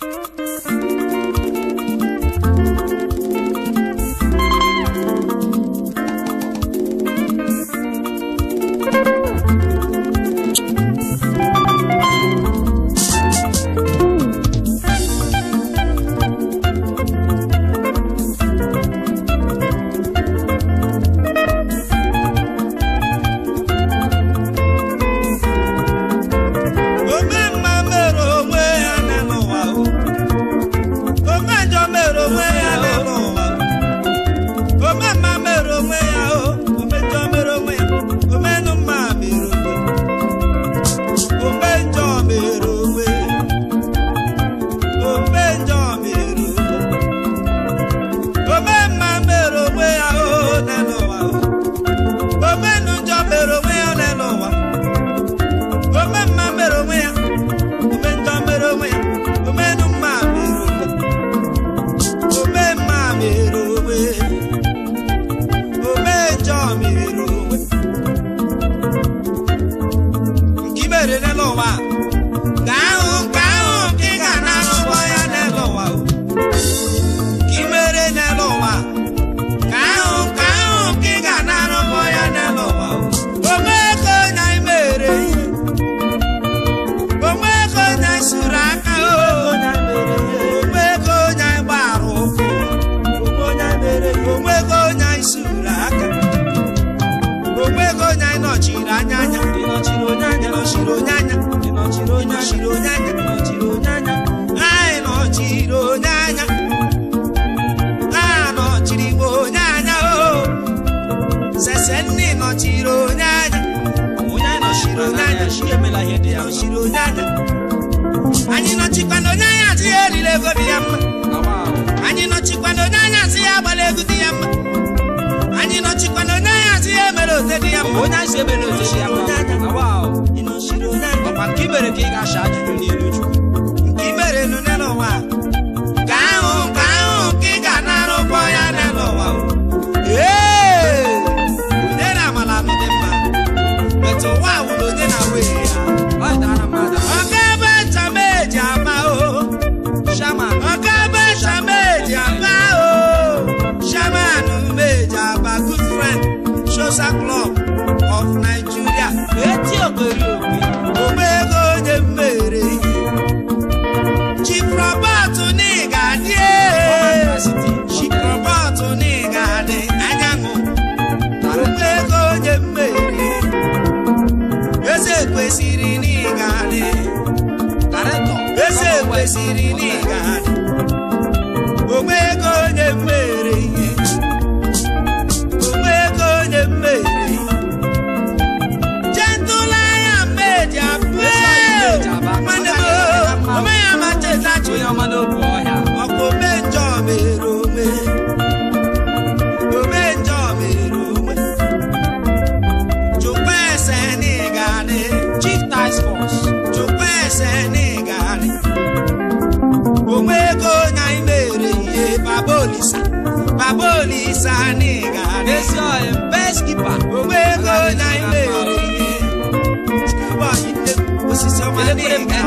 Thank you. saninga nesoye mpeskipa okwego na imeri skubanyite osisi omaninga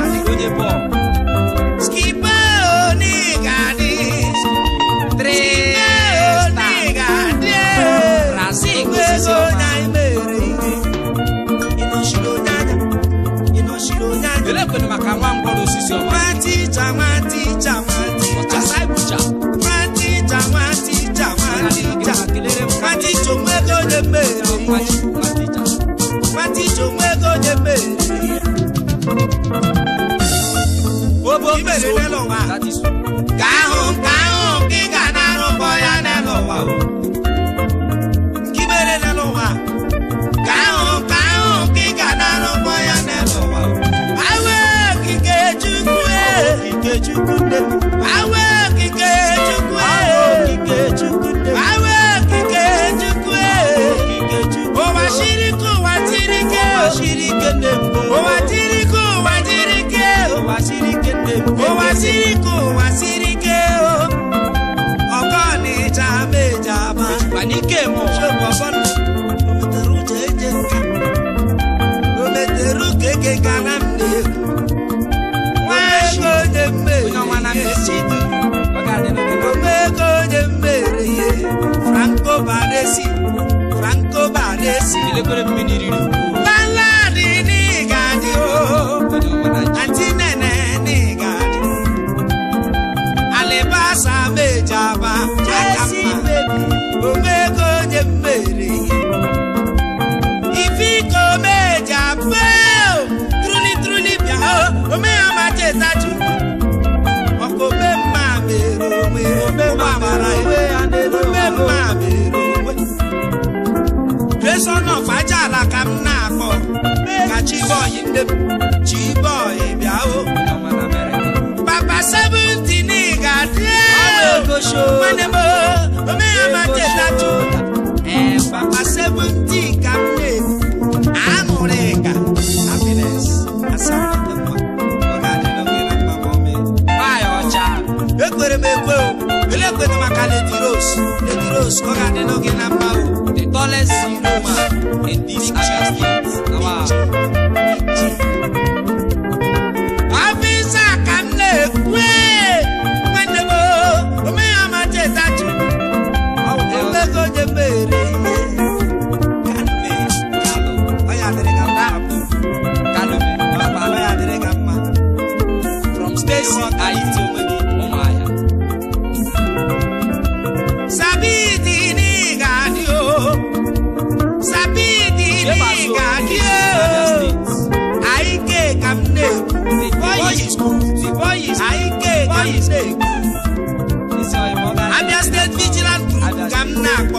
你没谁脸了。na-esi na nkoba na-esi mmiri riri n'ọgbaja ala ka m na-akpọ ka bịa o papa seventeen ga-adị m papa ka m na-ekwu aṅụrị ka happiness asamdị ọ na ekwere m ekwe o ele ekwere maka lady rose lady rose ka ọ adị na mma o in these areas. Now, knock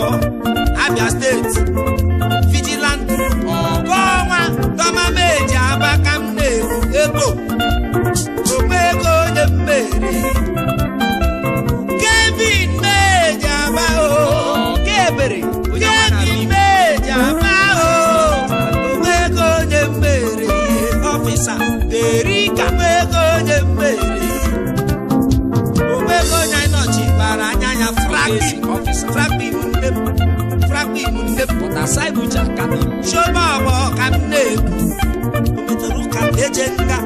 chioma ọgbọ ka m na-ekwu ometara ụka eje nga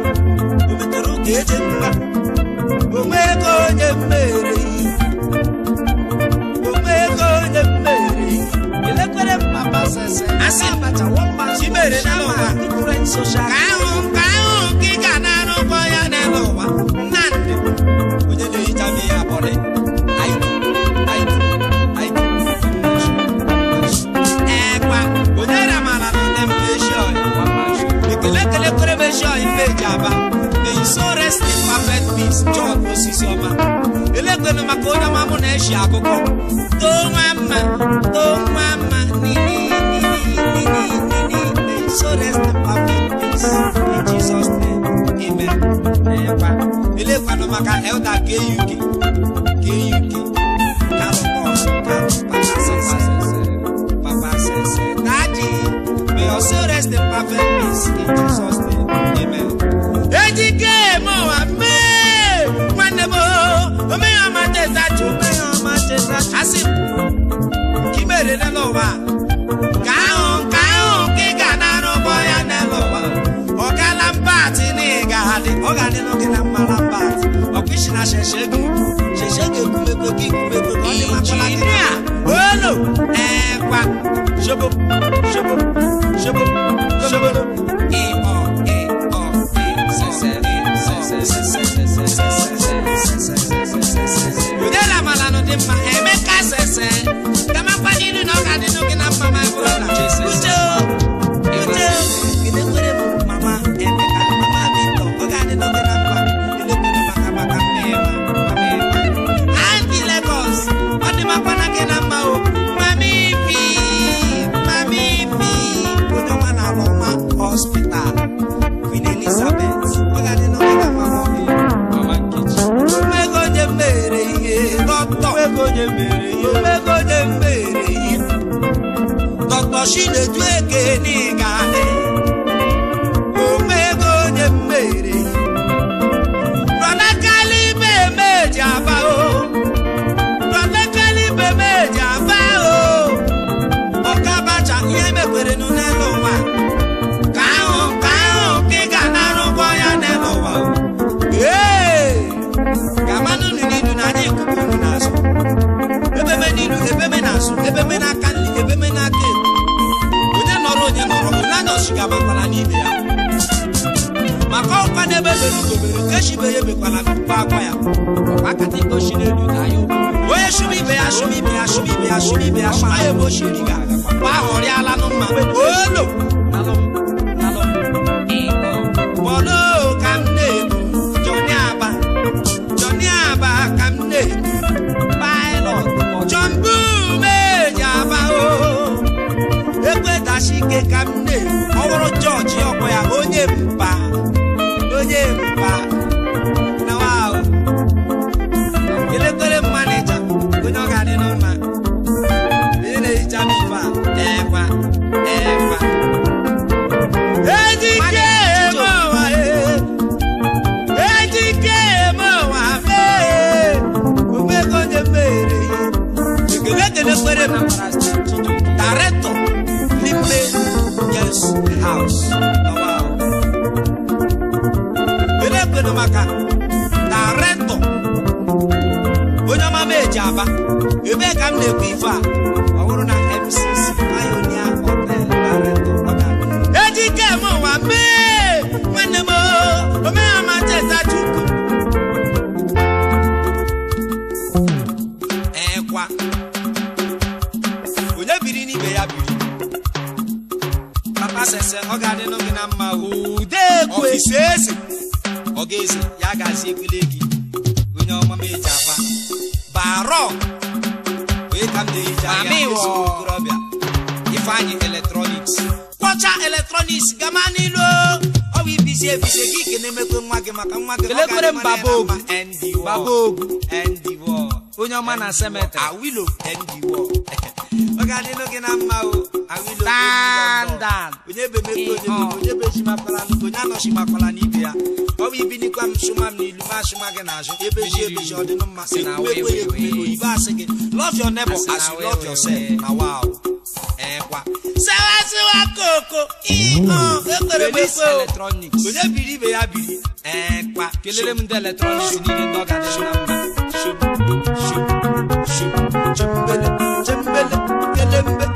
ometara ụka eje nga onwe ego onye mmere ihe onwe ego onye mmere ihe elekwere mma basese asị abacha wọ mma chimere n'ụwa ka ahụ nka imejaba the insurance the perfect peace john osisioma elégbèmí maka onye ọma mụ na-eshi akụkọ too nwa nini, nini, nini, nini, the insurance the perfect peace in jesus name amen n'ekwa elekwanụ maka elder kuk Papa karụkọ karụkọ May your soul rest in perfect peace in Jesus' injinia olu ekwa shobo shobo shobo machine mashine tuekenigane ọkwa n'ebe zoro echibe ya emekwala akwa akwa ya ọkwa kata ikpochi n'elu na ya onye chụrụ ibe ya chụrụ ibe ya chụrụ ibe ya chụrụ ya ya ọkwa ya onye mba onye mba na wahụ elekwere manija onye ọ ga-adị n'ụlọ onye na-ehicha n'ụba ekwa ekwa director n'ime yes house aba ebee ka m na-ekwu ife a ọ bụrụ na MCC Pioneer Hotel eji eme mee onye biri n'ibe ya biri papa sese ọ ga adị n'oge na mma ụdị ekwe ọ ga-eze ya g maame wɔ ifeanyi electronics kɔcha electronics gama nilo ɔbi bise bise kiki ne mekwe nwa gị maka nwa gị elekere m babogu babogu onye ọma na semetrị awilo ndiwo onye onye ya e e ọ bụ ibinikwa m sụma e m n'ilu na na you na ya biri ndị eletrọniks ọ ¡Gracias!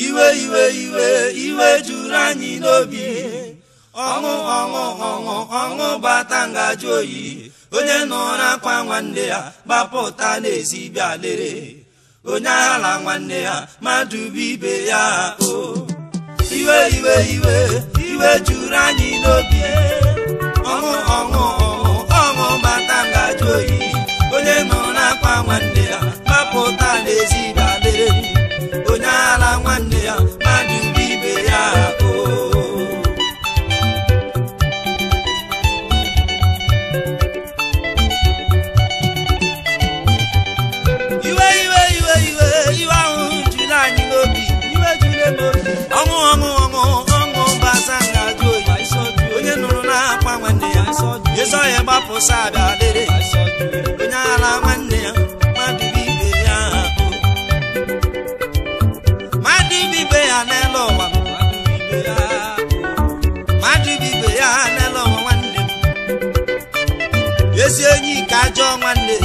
iwe iwe iwe iwe juru anyị n'obi ọṅụ ọṅụ ọṅụ ọṅụ bata ngaji oyi onye nọrọ akwa nwanne ya gbapụta n'ezi bịa lere onye ala nwanne ya mmadụ bụ ibe ya o iwe iwe iwe iwe juru anyị n'obi ọṅụ ọṅụ ọṅụ ọṅụ bata ngaji oyi onye nọrọ akwa nwanne ya gbapụta n'ezi bịa amụsa abịa lere onye ala nwanne ya mmadụ ibe ya mmadụ ibe ya n'elu ụwa mmadụ ya n'elu ụwa nwanne m ezi enyi ka ajọ nwanne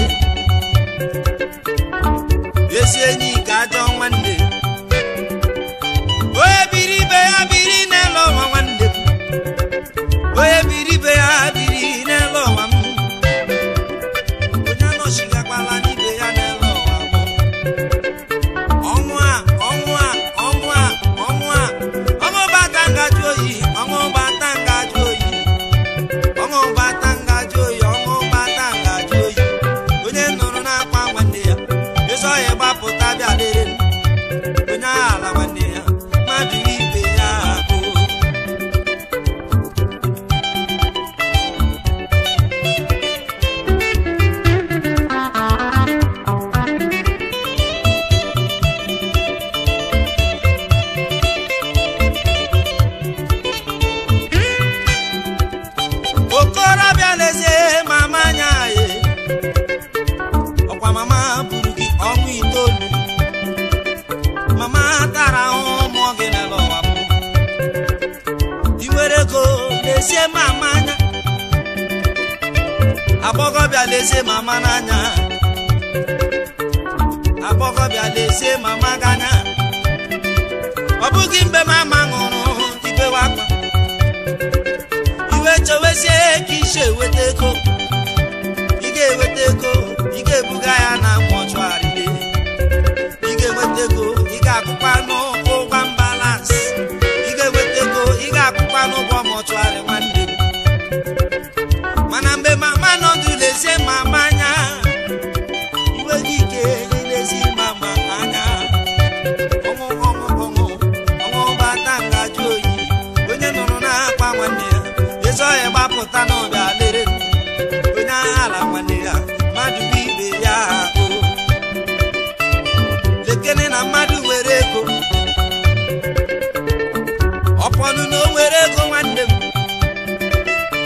ụfọdụ na o ego nwanne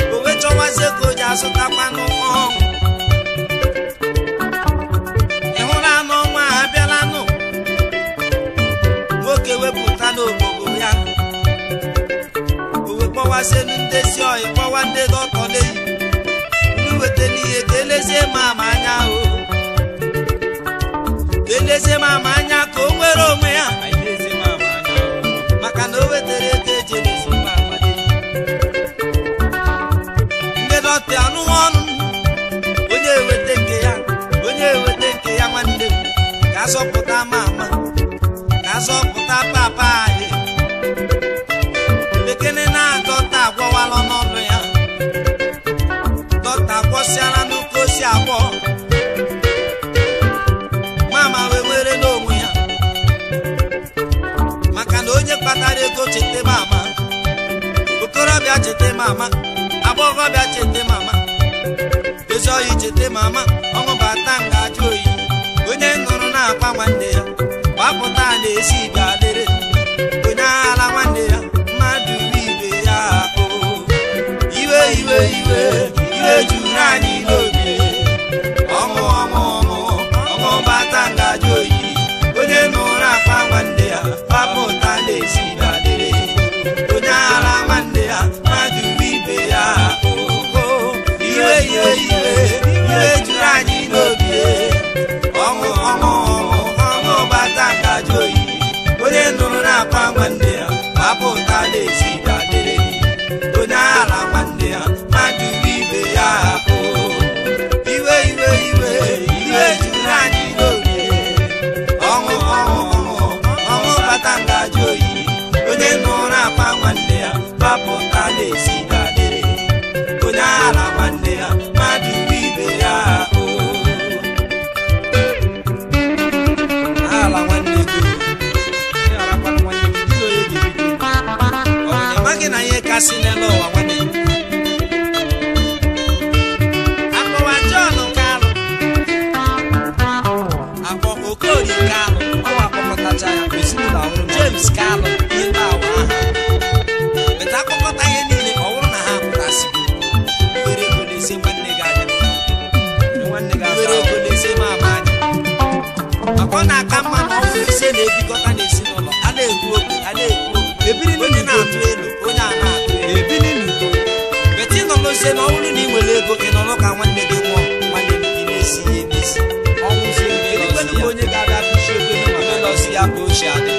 m o wechọwazi ego ji azụtakwanụ ọṅụ ịhụrụ anụ ọnwa a abịalanụ nwoke wepụta n'obodo ya owe kpọwazielu ndezi oyi kpọwa ndị dọtọ n'eyi ndị weta n'ihe ka elezie ma ama anya o ka elezie ma ama anya ka o nwere onwe ya maka na o wetara bịa nụwa onye eweta nke ya onye eweta nke ya nwanne m ka asọpụta ama ama ka asọpụta papa anyị lekene na-atọ ta n'ọnụ ya dọta gwọsịala n'ụka osi agwọ mama wee were n'onwe ya maka na onye kpatara ego chete mama okorobịa cheta mama agbọghọbịa cheta mama ezuohi chete mama ọnwụ bata nga ajụ oyi onye ṅụrụ na-akwa nwanne ya gbapụta na-esi ibe adịrị onye aghala nwanne ya mmadụ ibe ya iwe iwe iwe iwe juru anyị na-akwa nwanne ya ma apụ ụta na si n'elu ụwa nwanne akpọwa John Kalu akpọ Okorie Kalu ọwa ya ezinụlọ ọhụrụ James Kalu awa aha meta akpọkọta ihe niile ka na ha pụtasị were ego na-ese nwanne gị anya nwanne gị na-ese anya maka na-aka mma na na-ebikọta na-ekwu ebiri na-atụ elu sị na ọ bụrụ na ị nwere ego ị nọrọ ka nwanne gị nwụọ nwanne gị gị na-esi ya emesi ọnwụ onye ga-abịa kpuchi ego nọsi ya ka ochie adị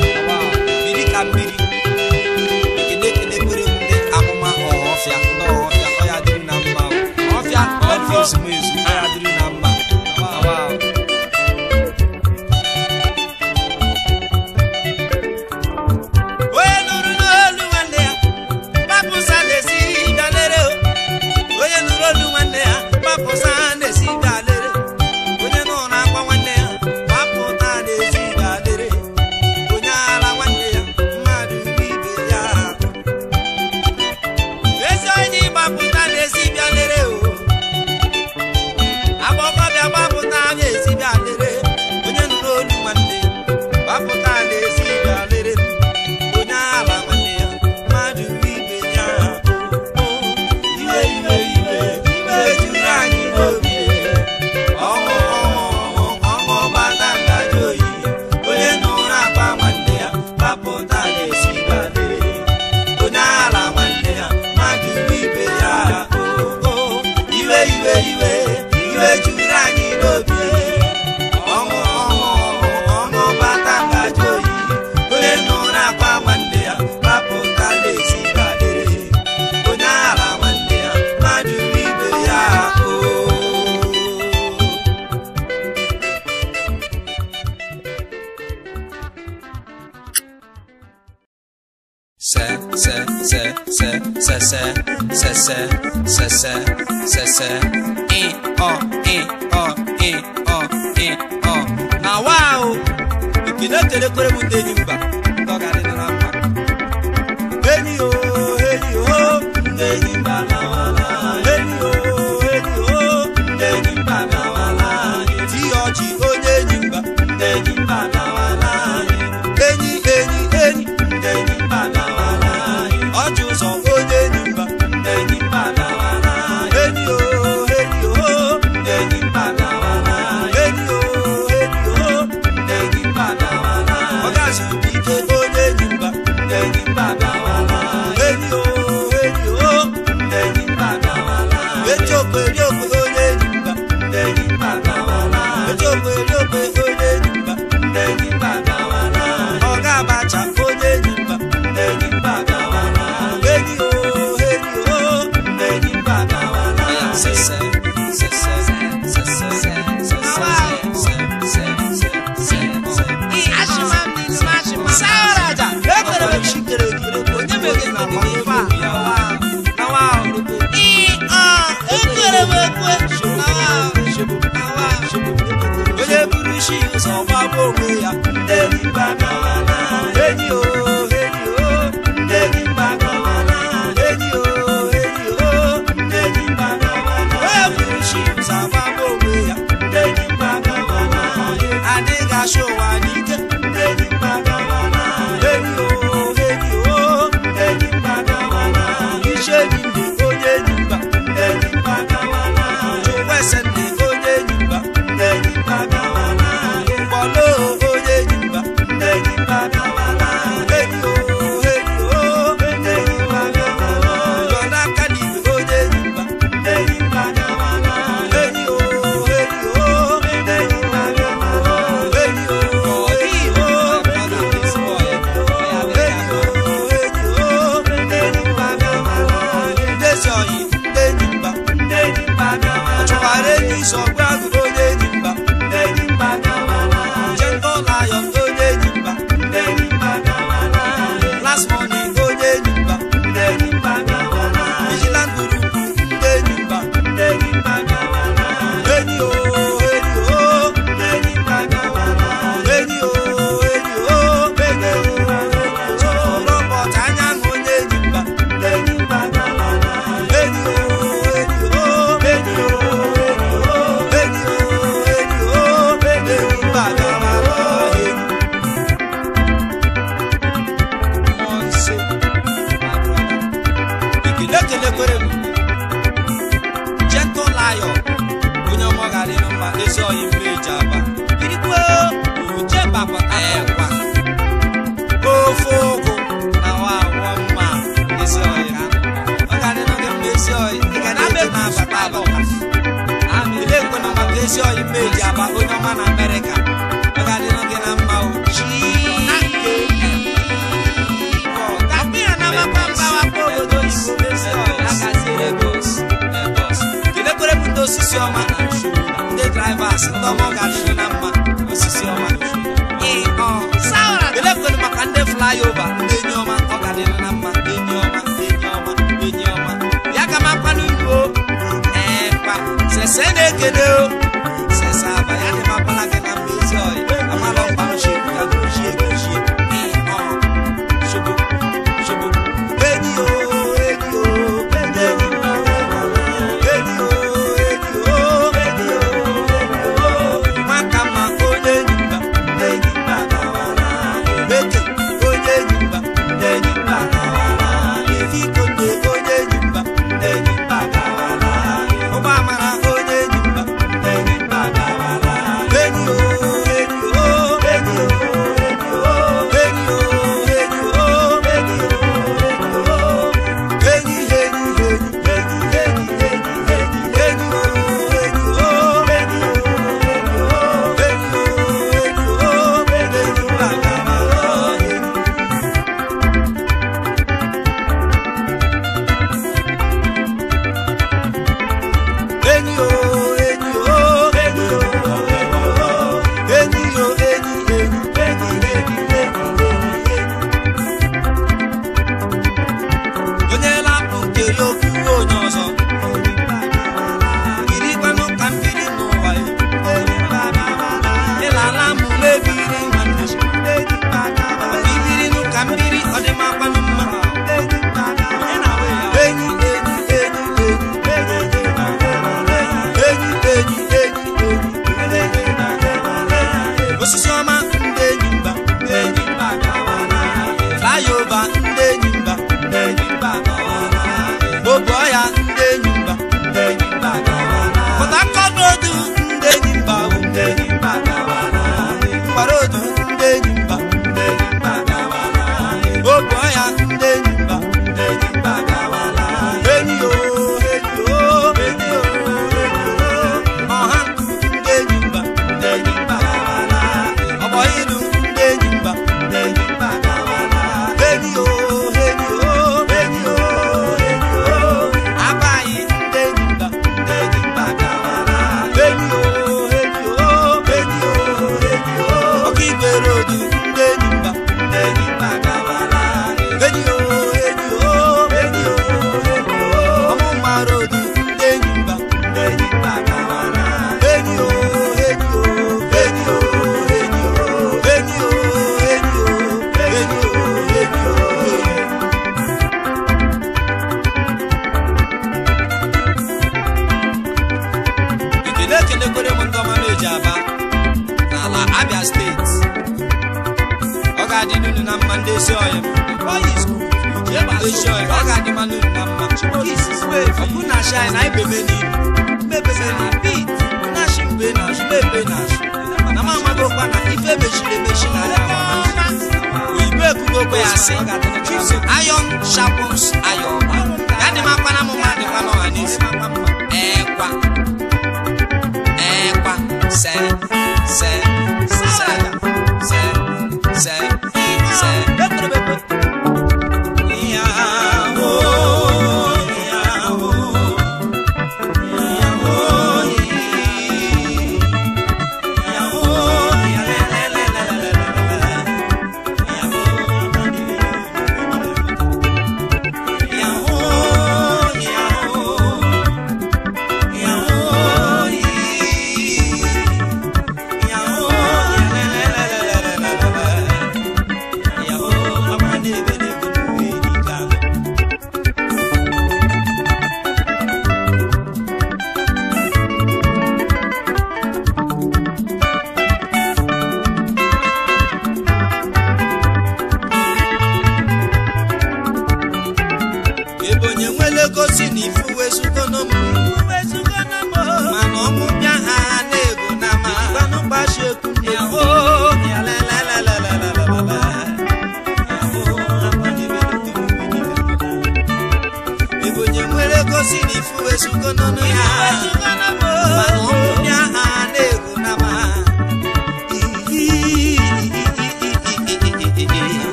parou do